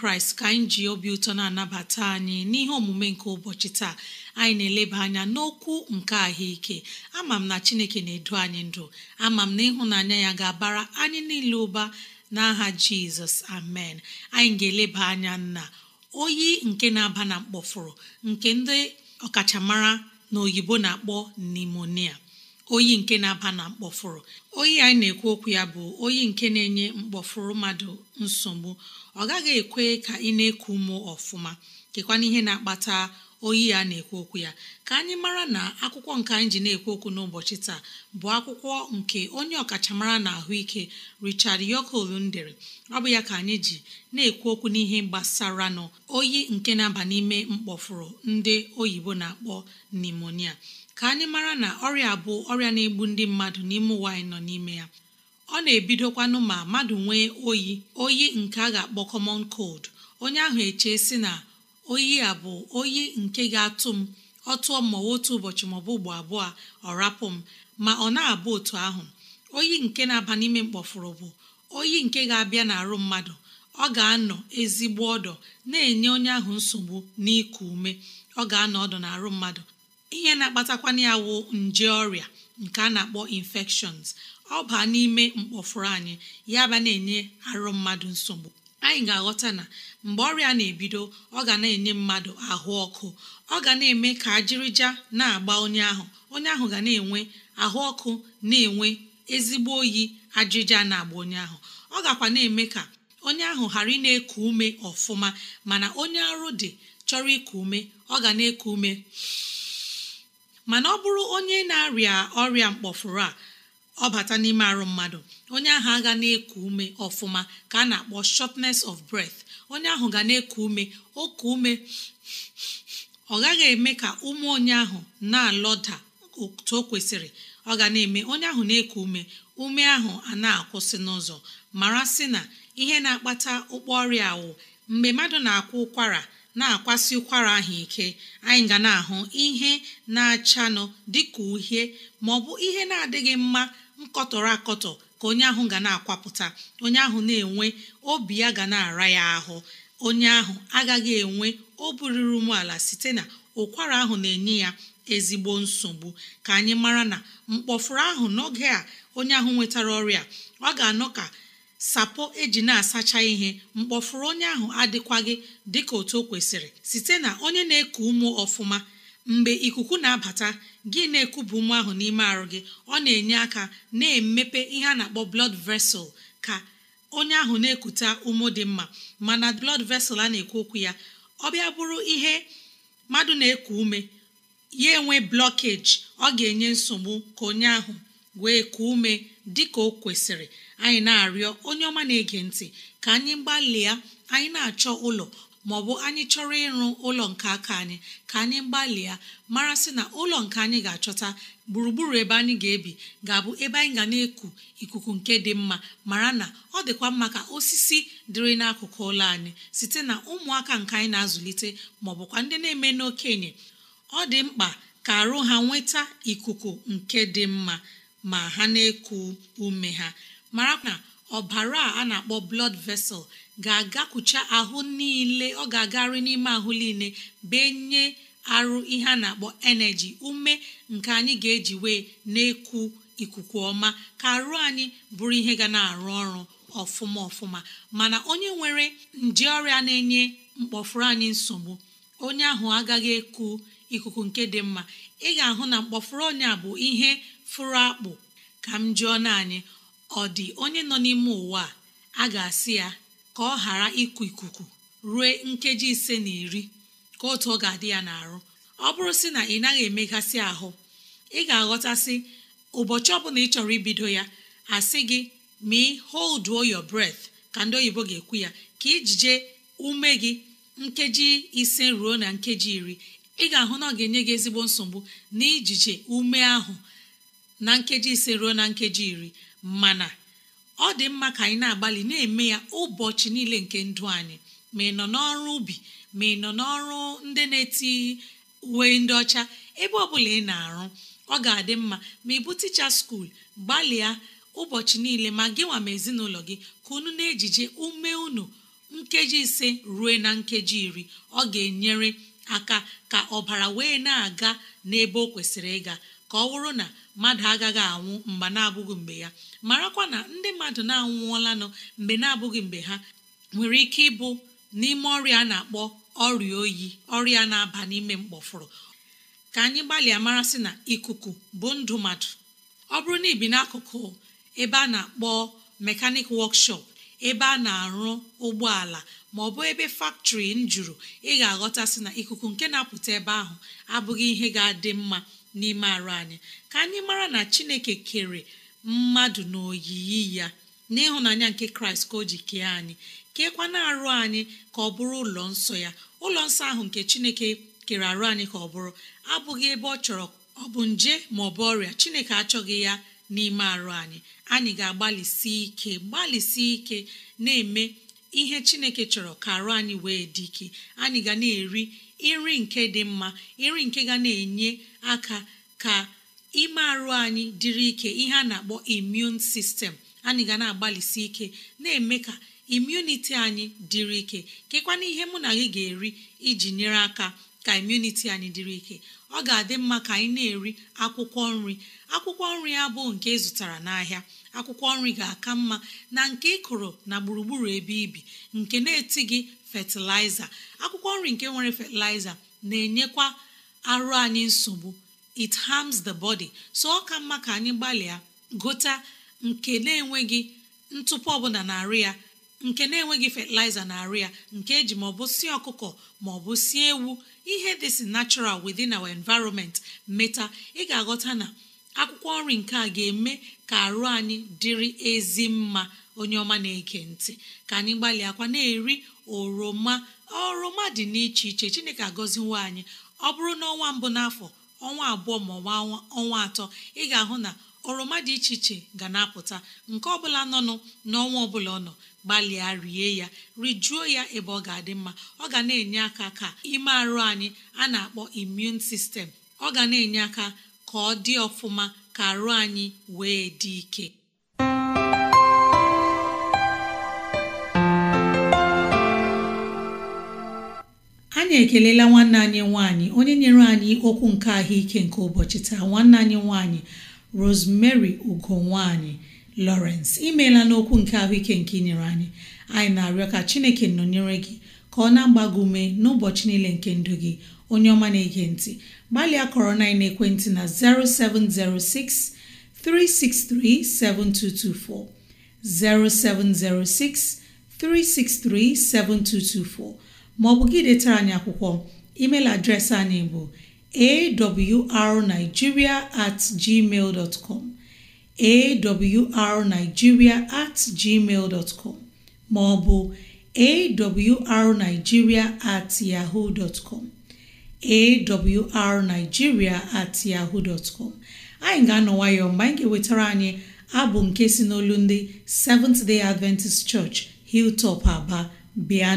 kraịst ka anyị ji obi ụtọ na-anabata anyị n'ihe omume nke ụbọchị taa anyị na-eleba anya n'okwu nke ahụike ama m na chineke na-edu anyị ndụ ama m na ịhụnanya ya ga-abara anyị niile ụba n'aha jizọs amen anyị ga-eleba anya na oyi nke na-aba na mkpọfụrụ nke ndị ọkachamara na oyibo na-akpọ nimonia oyi nke na-aba na mkpọfụrụ oyi anyị na-ekwu okwu ya bụ oyi nke na-enye mkpọfụrụ mmadụ nsogbu ọ gaghị ekwe ka ị na-eku ụmụ ọfụma kekwana ihe na-akpata oyi ya na-ekwu okwu ya ka anyị mara na akwụkwọ nke anyị ji na-ekwu okwu n'ụbọchị taa bụ akwụkwọ nke onye ọkachamara na ahụike richard yokoolun dere ọ bụ ya ka anyị ji na-ekwu okwu n'ihe gbasara n'oyi nke na-aba n'ime mkpọfụrụ ndị oyibo na-akpọ nimonia ka anyị mara na ọrịa bụ ọrịa na-egbu ndị mmadụ n'ime ụwa anyị nọ n'ime ya ọ na-ebidokwanụ ma mmadụ nwee oyi oyi nke a ga-akpọ kọmon kold onye ahụ eche sị na oyi a bụ oyi nke ga-atụ m ọ tụọ otu ụbọchị maọbụ ugbo abụọ ọ rapụ m ma ọ na-abụ otu ahụ oyi nke na-aba n'ime mkpọfụrụ bụ oyi nke ga-abịa n'arụ mmadụ ọ ga-anọ ezigbo ọdọ na-enye onye ahụ nsogbu n'iku ume ọ ga-anọ ọdọ n'arụ mmadụ ihe na-akpatakwana ya wụ nje ọrịa nke a na-akpọ infections ọ baa n'ime mkpọfụrụ anyị ya ba na-enye arụ mmadụ nsogbu anyị ga-aghọta na mgbe ọrịa na-ebido ọ ga na-enye mmadụ ahụ ọkụ ọ ga na-eme ka ajịrịja na-agba onye ahụ onye ahụ ga na-enwe ahụ ọkụ na-enwe ezigbo oyi ajịja na-agba onye ahụ ọ gakwa na-eme ka onye ahụ ghara ị na-eku ume ọfụma mana onye arụ dị chọrọ iku ume ọ ga na-eku ume mana ọ bụrụ onye na-arịa ọrịa mkpọfụrụ a ọ bata n'ime arụ mmadụ onye ahụ aga na-eku ume ọfụma ka a na-akpọ shortness of breath onye ahụ ga na-eku ume oku ume ọ gaghị eme ka ume onye ahụ na-alọda otu o kwesịrị ọ ga na-eme onye ahụ na-eku ume ume ahụ a na-akwụsị n'ụzọ mara sị na ihe na-akpata ụkpọ ọrịa awụ mgbe mmadụ na-akwụ ụkwara na-akwasị ụkwara ahụ ike anyị ga na-ahụ ihe na-achanụ dịka uhie ma ọ bụ ihe na-adịghị mma nkọtọrọ akọtọ ka onye ahụ ga na-akwapụta onye ahụ na-enwe obi ya ga na-ara ya ahụ onye ahụ agaghị enwe oburiri umeala site na ụkwara ahụ na-enye ya ezigbo nsogbu ka anyị mara na mkpọfuru ahụ n'oge a onye ahụ nwetara ọrịa ọ ga-anọ ka sapo eji na-asacha ihe mkpọfuru onye ahụ adịkwaghị dịka otu o kwesịrị site na onye na-eku ụmụ ọfụma mgbe ikuku na-abata gị na ekwubụ nwa ahụ n'ime arụ gị ọ na-enye aka na-emepe ihe a na-akpọ blood vessel ka onye ahụ na-ekute ụmụ dị mma mana blood vessel a na-ekwu okwu ya ọ bịa bụrụ ihe mmadụ na-eku ume ya enwe blockage ọ ga-enye nsogbu ka onye ahụ wee kuo ume dị ka o anyị na-arịọ onye ọma na-ege ntị ka anyị gbalịa anyị na-achọ ụlọ ma ọ bụ anyị chọrọ ịrụ ụlọ nke aka anyị ka anyị gbalịa mara sị na ụlọ nke anyị ga-achọta gburugburu ebe anyị ga-ebi ga-abụ ebe anyị ga na-eku ikuku nke dị mma mara na ọ dịkwa mma ka osisi dịrị n'akụkụ ụlọ anyị site na ụmụaka nke anyị na-azụlite maọbụkwa ndị na-eme n'okenye ọ dị mkpa ka arụ ha nweta ikuku nke dị mma ma ha na-eku ume ha mara na ọbara a na-akpọ blood vessel ga-agakwucha ahụ niile ọ ga-agarị n'ime ahụ niile benye arụ ihe a na-akpọ energy ume nke anyị ga-eji wee na-ekwu ikuku ọma ka arụ anyị bụrụ ihe ga na-arụ ọrụ ọfụma ọfụma mana onye nwere nje ọrịa na-enye mkpọfuru anyị nsogbu onye ahụ agaghị eku ikuku nke dị mma ị ga-ahụ na mkpọfuru ọnya bụ ihe fụrụ akpụ ka m jụọ na anyị ọ dị onye nọ n'ime ụwa a ga-asị ya ka ọ ghara ịkụ ikuku ruo nkeji ise na iri ka otu ọ ga-adị ya n'arụ ọ bụrụ sị na ị naghị emegasị ahụ ị ga-aghọtasị ụbọchị ọbụla ị chọrọ ibido ya asị gị ma holduo your breath ka ndị oyibo ga-ekwu ya ka ijije ume gị nkeji ise ruo na nkeji iri ị ga-ahụ na ọ ga-enye gị ezigbo nsogbu na ijije ume ahụ na nkeji ise ruo na nkeji iri mana ọ dị mma ka anyị na-agbalị na-eme ya ụbọchị niile nke ndụ anyị ma ị nọ n'ọrụ ubi ma ị nọ n'ọrụ ndị na-eti uwe ndị ọcha ebe ọ bụla ị na-arụ ọ ga-adị mma ma ịbụ ticha skuul gbalịa ụbọchị niile ma gị ma ezinụlọ gị ka unu na-ejije ume unu nkeji ise ruo na nkeji iri ọ ga-enyere aka ka ọbara wee na-aga n'ebe o kwesịrị ịga ka ọ bụrụ na mmadụ agaghị anwụ mgbe na-abụghị mgbe ya marakwa na ndị mmadụ na-anwụọlanụ mgbe na-abụghị mgbe ha nwere ike ịbụ n'ime ọrịa a na-akpọ ọrịa oyi ọrịa na-aba n'ime mkpọfụrụ ka anyị gbalịa mara sị na ikuku bụ ndụ mmadụ ọ bụrụ na ibi n'akụkụ ebe a na-akpọ mekanik wọkshọp ebe a na-arụ ụgbọala ma ọ bụ ebe faktọri m jụrụ ị ga-aghọta sị na ikuku nke na-apụta ebe ahụ abụghị ihe ga-adị mma n'ime arụ anyị ka anyị mara na chineke kere mmadụ na oyiyi ya n'ịhụnanya nke kraịst ka o ji kee anyị keekwana arụ anyị ka ọ bụrụ ụlọ nsọ ya ụlọ nsọ ahụ nke chineke kere arụ anyị ka ọ bụrụ abụghị ebe ọ chọrọ ọ bụ nje ma ọ bụ ọrịa chineke achọghị ya n'ime arụ anyị anyị ga-agbalịsi ike gbalịsi ike na-eme ihe chineke chọrọ ka arụ anyị wee dị ike anyị ga na-eri nri nke dị mma nri nke ga na-enye aka ka ime arụ anyị dịrị ike ihe a na-akpọ imun sistem anyị ga na-agbalịsi ike na-eme ka imuniti anyị dịrị ike kekwana ihe mụ na gị ga-eri iji nyere aka ka imuniti anyị dịrị ike ọ ga-adị mma ka anyị na-eri akwụkwọ nri akwụkwọ nri ya bụ nke ịzụtara n'ahịa akwụkwọ nri ga-aka mma na nke ịkụrụ na gburugburu ebe ibi nke na-etighị fatịlaịza akwụkwọ nri nke nwere fatịlaịza na-enyekwa arụ anyị nsogbu it harms the body so ọ ka mma ka anyị gbalịa gota nke na-enweghị ntụpọ ọbụla na-arụ ya nke na-enweghị fatịlaịza na arịa nke eji maọbụ si ọkụkọ maọbụ si ewu ihe dị si natural within our environment meta ị ga-aghọta na akwụkwọ nri nke a ga-eme ka arụ anyị dịrị ezi mma onye ọma na eke ntị ka anyị gbalịakwa na-eri oroma oroma dị n'iche iche chineke agọziwo anyị ọ bụrụ na ọnwa mbụ n'afọ ọnwa abụọ ma ọnwa atọ ị ga-ahụ na oroma dị iche iche ga na-apụta nke ọbụla nọnụ n'ọnwa ọbụla ọ nọ gbalịa rie ya rijuo ya ebe ọ ga-adị mma ọ ga na-enye aka ka ime arụ anyị a na-akpọ imun sistem ọ ga na-enye aka ka ọ dị ọfụma ka arụ anyị wee dị ike anyị ekelela nwanne anyị nwanyị onye nyere anyị okwu nke ahụike nke ụbọchị taa nwanne anyị nwanyị Rosemary ugonwaanyị Lawrence imeela n'okwu nke ahụike nke inyere anyị anyị na-arịọ ka Chineke nọnyere gị ka ọ na-agba ume n'ụbọchị niile nke ndụ gị onye ọma na-ege ntị gbalịa kọrọ na ekwentị na 0706 363 7224 0706 363 7224 maọbụ gị detara anyị akwụkwọ email adreesị anyị bụ awrnigeria at gmail dot com awrnigeria at gmail dot com ma ọ bụ awrnigeria at yahoo dot com awrnigeria at yahoo dot com anyị ga-anọ mgbe anyị ga-ewetara anyị abụ nke si n'olu ndị Seventh Day Adventist Church Hilltop Aba bịa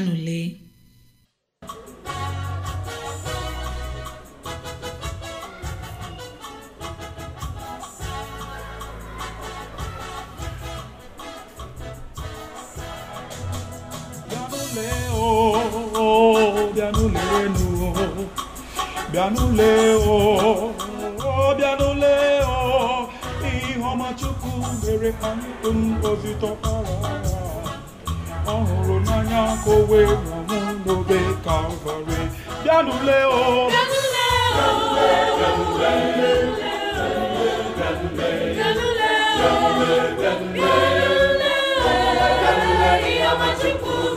n'ụlọ o bịa n'ụlọ ihe ọma Chukwu mere ka ndụ m obi tọkwara ọ n'anya ka o wee nwụọ m n'obe Kalvarị bịa n'ụlọ o bịa n'ụlọ o Chukwu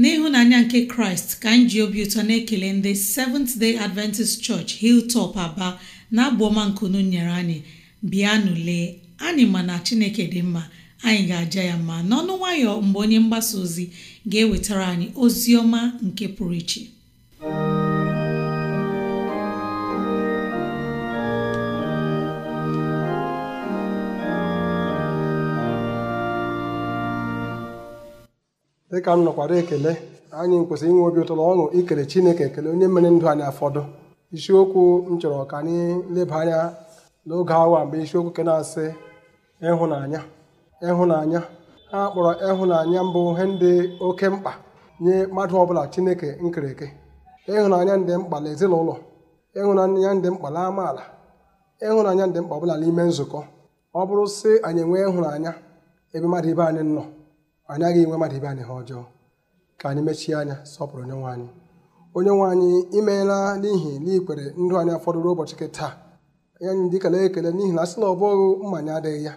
n'ịhụnanya nke kraịst ka anyị ji obi ụtọ na-ekele ndị Seventh Day Adventist Church Hilltop Aba na abụọma nkunu nyere anyị bịa nụlee anyị ma na chineke dị mma anyị ga-aja ya mma n'ọnụ nwayọ mgbe onye mgbasa ozi ga-ewetara anyị ozi ọma nke pụrụ iche dịka m nọkwara ekele anyị kwesịrị inwe obi ụtọ na ọṅụ ikere Chineke ekele onye mere ndụ anyị afọdụ isiokwu m chọrọ ka anyị leba anya n'oge awa mgbe isiokwu ke na-asị ịhụnanya ịhụnanya ha kpọrọ ịhụnanya mbụ ihe ndị oke mkpa nye mmadụ ọbụla Chineke nkereke ịhụnanya ndị mkpa na ezinụlọ ịhụnanya ndị mkpa na amaala ịhụnanya ndị mkpa ọbụla n'ime nzukọ ọ bụrụ sị anyị enwee ịhụnanya ebe mmadụ ibe anyị nọ ọ naghị nwe mmadụ ibe anyị ha ọjọọ ka anyị mechie anya sọpụrụ onye nwe anyị onye nwe anyị imeela n'ihi n'ikwere ndụ anyị fọdụrụ ụbọchị nke taa anyị dị ikele ekele n'ihi na asị na ọ bụghị mmanya adịghị ya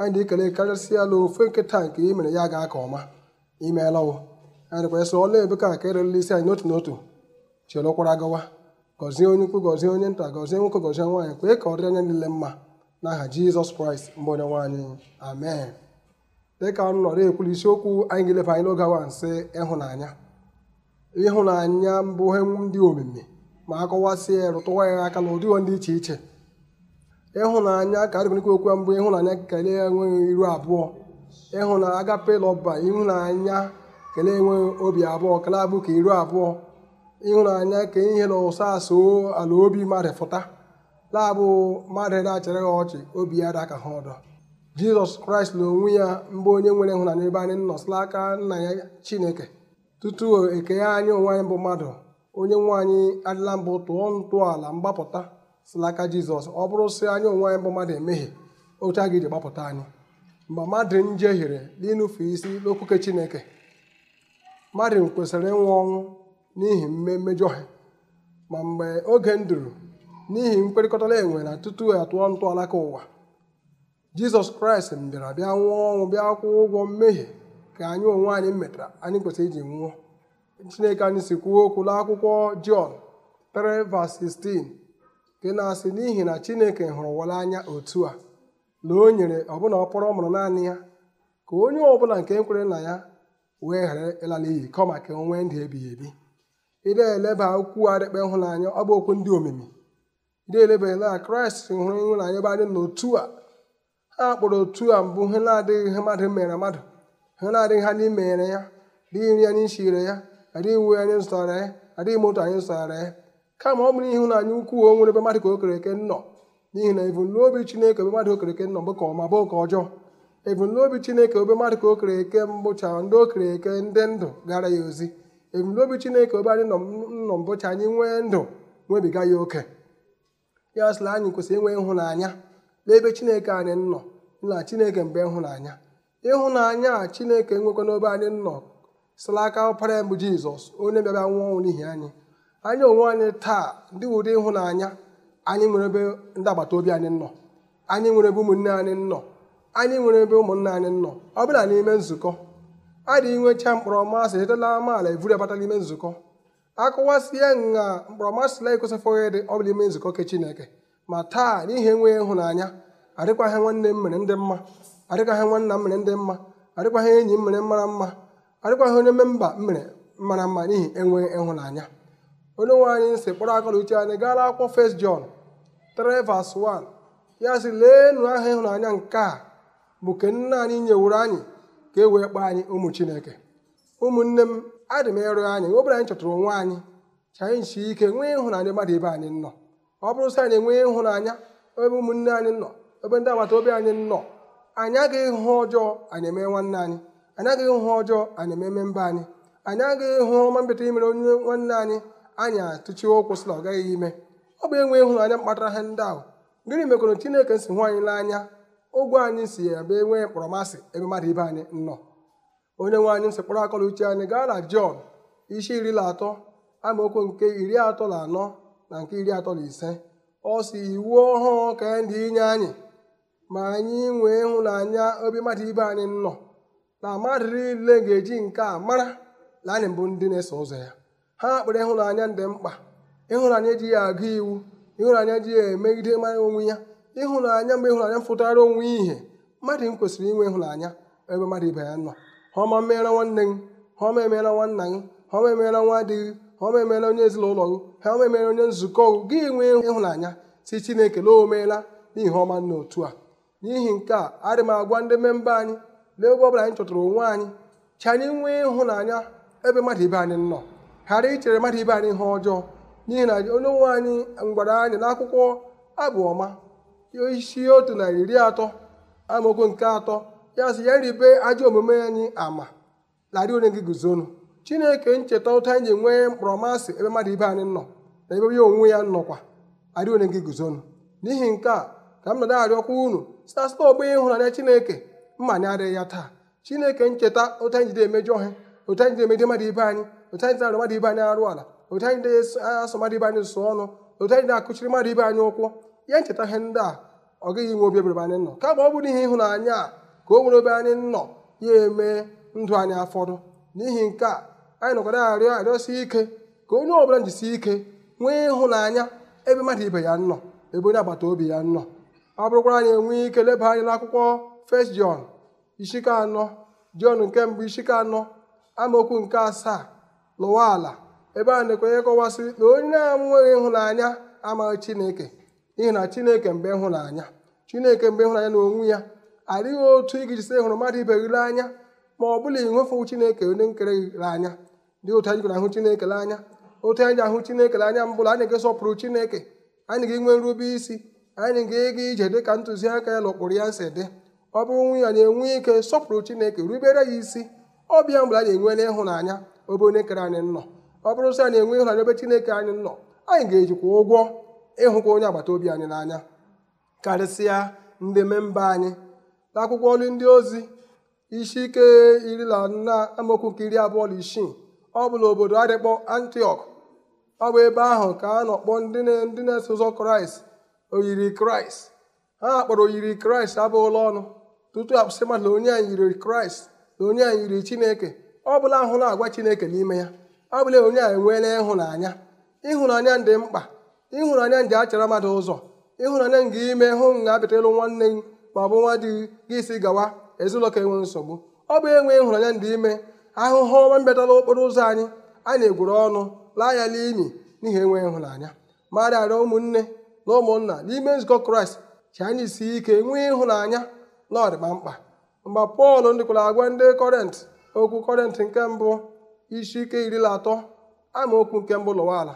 anyị dị ikele karịsịa ala ofe nkịta nke i mere ya gaa aka ọma imeela wụ anyị ebe ọla ka nke ererela isi anyị n'otu n'otu chịrụkwara gawa gọzie onye ukwu gọzie onye nta gọzie nwoke gọzie nwaanyị kwee ka ọ dị anya niile mma n'aha Jizọs Kraịst mbụ onye nwaanyị amen dịka m nọrọ ekwuru isiokwu anyị ga elefe anyị n'oge nsị ịhụnanya ịhụnanya mbụ ndị omimi ma akọwasịa ya rụtụwa ya aka na ndị iche iche ịhụnanya ka adịgonyekwa okwu mbụ ịhụnanya kelee enweghị iru abụọ ịhụnanya agapela ọba ịhụnanya kelee enweghị obi abụọ kelee abụ ka iru abụọ ịhụnanya ka ihe na ụsa asụ ala obi mmadụ fụta laabụ mmadụ na-achara ya ọchị obi ya daka ha ọdọ jizọs kraịst na onwe ya mbụ onye nwere ịhụnanya ebe anyị nọsịla aka nna ya chineke tutu eke anyị onwe anyị bụ mmadụ onye nwe anyị adịla mbụ tụọ ntọala mgbapụta silaka jizọs ọ bụrụ sị anyị onwe anyị bụ mmadụ emeghe otu a ga-eji gbapụta anyị mgbe mmadụ njehiere n'ịnụfe isi n'okwuke chineke mmadụ kwesịrị ịnwụ ọnwụ n'ihi mmejọ ha ma mgbe oge nduru n'ihi mkperịkọtala enwe na tutu atụọ ntọala ka ụwa jizọs kraịst bịara bịa nwụọ ọnwụ bịa kwụọ ụgwọ mmehie ka anyị onwe anyị metara anyị kwesịrị iji nwụọ chineke anyị si kwuo okwu n'akwụkwọ jọn 3:16 nke na-asị n'ihi na chineke hụrụ wala anya otu a na o nyere ọbụna ọkpọrọ ọ mụrụ naanị ya ka onye ọbụla nke kwere na ya wee ghara ịla n'iyi kọma ka onwe nwee ndụ ebighị ebi ịdị eleba okwu adịkpe ịhụnanya ọ bụ okwu ndị omimi ịdị eleba na kraịst hụrụ ịhụnanya ebe anyị n'otu a a kpọrọ otu a mbụ ihe na-adịghị mmadụ mere mmadụ ihe na-adịghị ha anyị mere ya adịghị nri anyị shire ya adịghị uwe anyị zụtara ya adịghị moto anyị zụtara ya kama ọ bụrụ ịhụnanya ukwuu o nwere mmadụ ka eke nọ n'ihi na ebumnobi chineke ebe mmadụ eke nọ bụ ka ọma bụ ka ọjọọ ebumnobi chineke obe mmadụ ka okereke mbụcha ndị okereke ndị ndụ gara ya ozi ebumnobi chineke obe anyị nọ mbụcha anyị nwee ndụ nwebiga ya oke ya sịla anyị kwesịrị inwe ịhụnanya n'ebe chineke anyị nọ na chineke mgbe ịhụnanya ịhụnanya a chineke nwekwa n'obe anyị nọ sila aka ya mbụ jizọs onye bịara nwụọ ọnwụ n'ihi anyị anyị onwe anyị taa ndị ụdị ịhụnanya anyị nwere ebe ndị agbata obi anyị nọ anyị nwere ebe ụmụnne anyị nọ anyị nwere ebe ụmụnna anyị nọ ọ bụla n'ime nzukọ adịghị nwecha mkpọrọmasị etela amaala evuri abata n'ime nzukọ akụwasịa nha mkpọrọmasịla ekosịfụghị dị ọ bụla ime nzukọ ke chineke ma taa n'ihi enweghị ịhụnanya adịkwaghị nwanne m mere ndị mma adịkwaghị nwanna m mere ndị mma adịkwaghị enyi m mere mara mma adịkwaghị onye memba m mere mara mma n'ihi enweghị ịhụnanya onye nwe anyị nsị kpọrọ aka n'uche anyị gaala akwụkwọ jon John 3:1 ya sị leenụ aha ịhụnanya nke a bụ ke nna anyị nyewuru anyị ka e wee kpọọ anyị ụmụ Chineke ụmụnne m adị m ịrụ anyị obere anyị chọtụrụ onwe anyị ka anyị ike nwee ịhụnanya mmadụ ibe anyị nọ ọ bụrụ sị anyị enwee ịhụnanya ebe ụmụnne anyị nọ ebe ndị agbata obi anyị nọ anyị agaghị hụ ọjọọ anyị emee nwanne anyị anyị agaghị hụ ọjọọ anyị ememe mba anyị anyị agaghị hụ ọma mbete imere onye nwanne anyị anyị atụchie ụkwụ sị na ọ gaghị ime ọ bụ enwe ịhụnanya mkpatara ha ndị ahụ gịnị mekọrọ chineke si hụ anyị n'anya ụgwọ anyị si ya bịa enwe mkpọrọmasị ebe mmadụ ibe anyị nọ onye nwe anyị nsị kpọrọ akọla uche anyị gaa na jọn isi iri na atọ amaokwu nke iri atọ na anọ na nke iri atọ na ise ọ si iwu ọhụụ ka e ndị inye anyị ma anyị nwee ịhụnanya obi mmadụ ibe anyị nọ na mmadụ niile ga-eji nke a mara na anyị mbụ ndị na-eso ụzọ ya ha kpere ịhụnanya dị mkpa ịhụnanya ya agụ iwu ịhụnanya ya emegide mara onwe ya ịhụnanya mgbe ịhụnanya fụtara onwe ihe mmadụ m kwesịrị inwe ịhụnanya ebe mmadụ ibe ya nọ ha ọma meere nwanne gị ha ọma emeela nwanna gị ha ọma emeela nwa dị gị ha ọma emeela onye ezinụlọ gị ha ọma emeela onye nzukọ gị gị nwee ịhụnanya si chineke na o meela n'ihi ọma nna otu a n'ihi nke a adị m agwa ndị memba anyị lee ebe ọbụla anyị chọtara onwe anyị chi anyị nwee ịhụnanya ebe mmadụ ibe anyị nọ ghara ichere mmadụ ibe anyị ihe ọjọọ n'ihi na onye nwe anyị ngwara anyị na akwụkwọ abụọma isi otu na iri atọ amaokwu nke atọ ya sị ya ribe ajọ omume anyị ama larị onye gị guzonu chineke ncheta ụta anyị ji enwe mkpọrọmasị ebe mmadụ ibe anyị nọ na ebe ya onwe ya nọkwa arị onye gị guzonu n'ihi nke a ka m nọdụ arịọkwa unu site na ọgbọ ịhụnanya chineke mma anyị adịghị ya taa chineke ncheta ụtọ anyị jide emejọ ha ụtọ anyị jide emejọ mmadụ ibe anyị ụta anyị jide mmadụ ibe anyị arụ ala ụta anyị jide asụ mmadụ ibe anyị sụọ ọnụ ụta anyị jide akụchiri mmadụ ibe anyị ụkwụ ya ncheta ihe ndị a ọ gaghị inwe obi ebere anyị nọ kama ọ bụrụ ihe ịhụnanya a ka o nwere obe anyị nọ ya eme ndụ anyị afọdụ n'ihi nke a anyị nọkọrọ arịọ arịọsi ike ka onye ọbụla njisi ike nwee ịhụnanya ebe mmadụ ibe ya nọ ebe onye agbata obi ya nọ ọ bụrụkwara anyị enwee ike leba anya n'akwụkwọ First jon ishike anọ John nke mbụ ishike anọ amaokwu nke asaa lụwa ala ebe a na-ekwenye kọwasịrị na onye na-enweghị ịhụnanya amaghị Chineke n'ihi na Chineke mgbe ịhụnanya Chineke mgbe ịhụnanya na onwe ya adịghị otu ị ga-ejisi hụrụ mmadụ ibe gị anya ma ọ bụla ịnwefuwu Chineke onye nkere gị anya ndị otu anyị kwere ahụ Chineke n'anya otu anyị ahụ Chineke n'anya mbụ anyị ga-esọpụrụ Chineke anyị ga-enwe nrube isi anyị ga-ega ije dị ka ntụziaka ya na ụkpụrụ ya si dị ọ bụrụ nwunye anyị enwe ike sọpụrụ Chineke rubere ya isi ọbịa mgbe anyị enwe n'ịhụnanya obe onye kere anyị nọ ọ bụrụ sị anyị enwe ịhụnanya ebe Chineke anyị nọ anyị ga-ejikwa ụgwọ ịhụkwa onye agbata obi anyị n'anya karịsịa ndị memba anyị n'akwụkwọ ndị ozi isi ike iri na nna amaokwu nke iri abụọ na isii ọ bụ n'obodo adịkpọ antiok ọ bụ ebe ahụ ka a nọkpọ ndị na-eso ụzọ kraịst oyiri kraịst ha kpọrọ oyiri kraịst ụlọ ọnụ tutu akpụsị mmadụ na onye anyị yiri kraịst na onye anyị yiri chineke ọ bụla ahụ na-agwa chineke n'ime ya ọ bụla onye anyị enweela ịhụnanya ịhụnanya dị mkpa ịhụnanya ndị achara mmadụ ụzọ ịhụnanya ga ime hụ na abịata nwanne gị ma ọ bụ nwa di gị isi gawa ezinụlọ ka enwe nsogbu ọ bụ enwe ịhụnanya ndị ime ahụhụ ọma mbịatala okporo ụzọ anyị a na-egwuru ọnụ laa ya n'imi n'ihi enweghị ịhụnanya mara arịọ ụmụnne na ụmụnna n'ime nzukọ kraịst chi anyị si ike nwee ịhụnanya na ọdịkpa mkpa mgbe pọl ndịkwara agwa ndị kọrent okwu kọrent nke mbụ isi ike iri na atọ amaokwu nke mbụ lụwa ala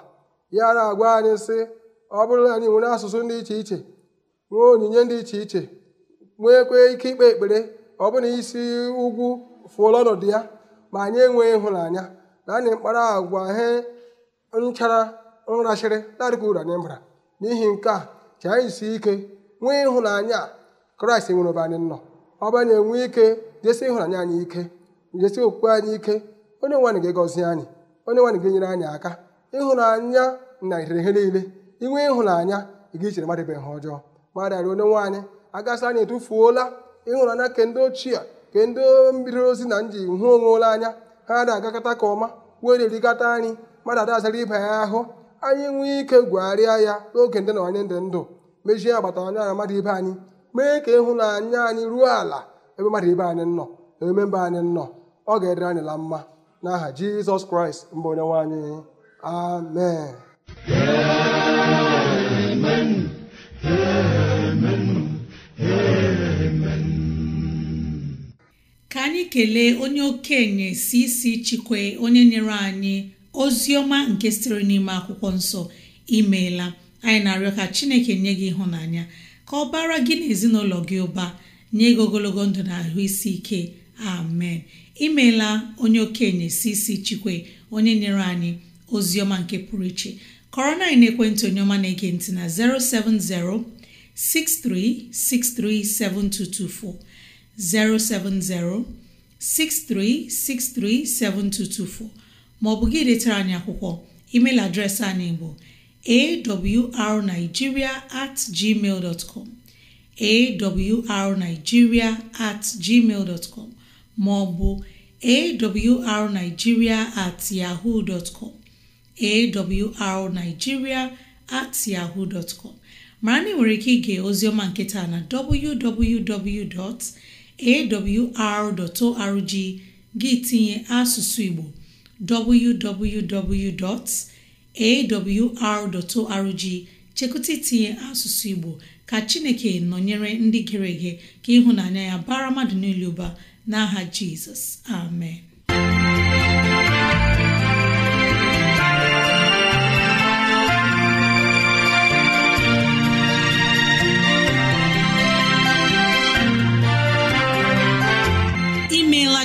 ya na-agwa anyị sị ọ bụrụ na anyị nwere asụsụ dị iche iche nwee onyinye dị iche iche nweekwa ike ikpe ekpere ọ bụrụ na isi ugwu fụọla ọnọdụ ya ma anyị enweghị ịhụnanya na anyị mkpara agwa he nchara nrachịrị na-adịghị anyị mbara n'ihi nke a ji anyị si ike nwee ịhụnanya kraịst nwere ebe anyị nọ ọ bụ anyị enwe ike jesi ịhụnanya anyị ike jesi okwukwe anyị ike onye nwe gị ga-egọzi anyị onye nwe anyị ga-enyere anyị aka ịhụnanya na ihe niile inwe ịhụnanya ị ga-ichere mmadụ ebe ihe ọjọọ mmadụ arịọ onye nwaanyị agasị anyị etufuola ịhụnanya nke ndị ochie nke ndị mmiri ozi na nji hụ onwe ole anya ha na-agakọta ka ọma were erikọta anyị mmadụ adazara ibe ya ahụ anyị nwee ike gwegharịa ya n'oge ndị na onye ndị ndụ mejie agbata anya na mmadụ ibe anyị mee ka ịhụnanya anyị ruo ala ebe mmadụ ibe anyị nọ na eme mba anyị nọ ọ ga-edere anyị la mma n'aha jizọs kraịst mbụ onye nwaanyị Amen. Amen. anyị kelee onye okenye si isi chikwe onye nyere anyị ozi ọma nke sitere n'ime akwụkwọ nsọ imeela anyị na-arịọ ka chineke nye gị ịhụnanya ka ọ bara gị na ezinụlọ gị ụba nye gị ogologo ndụ na ahụ isi ike amen imeela onye okenye si isi chikwe onye nyere anyị ozi ọma nke pụrụ iche kọrọ na ekwentị onye ọma na-ege ntị na 070 6363 7224 07063637224 maọbụ gị detara anyị akwụkwọ email adreesị anyị bụ awrnigeria at gmail dot com awrnigeria at gmail dot com maọbụ awrnigeria at yahoo dot com awrnigeria at yahoo com mara na ị nwere ike ige ozioma nketa na www. awr.org gị tinye asụsụ Igbo www.awr.org chekụta itinye asụsụ Igbo ka Chineke nọnyere ndị gere ege ka ịhụnanya ya bara mmadụ niile ụba n'aha Jizọs amen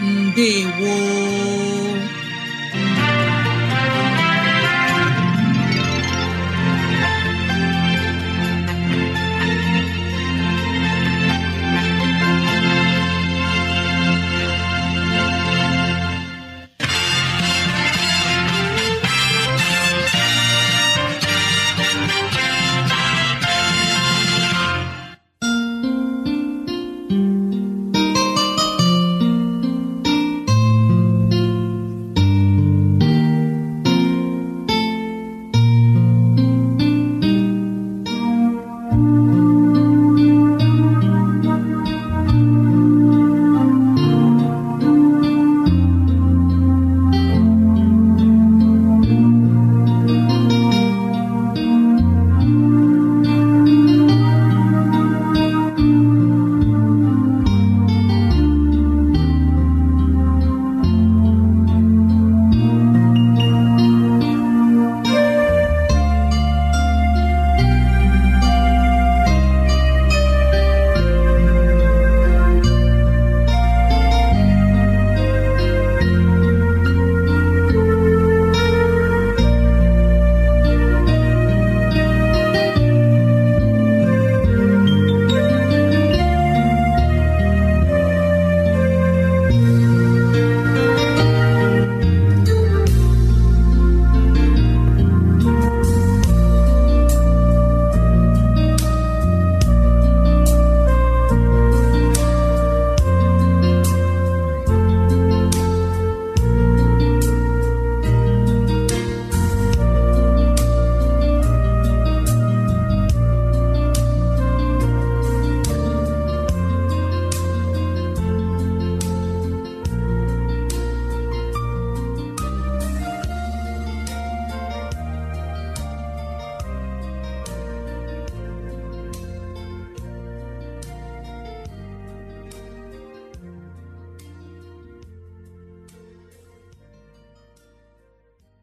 ndewo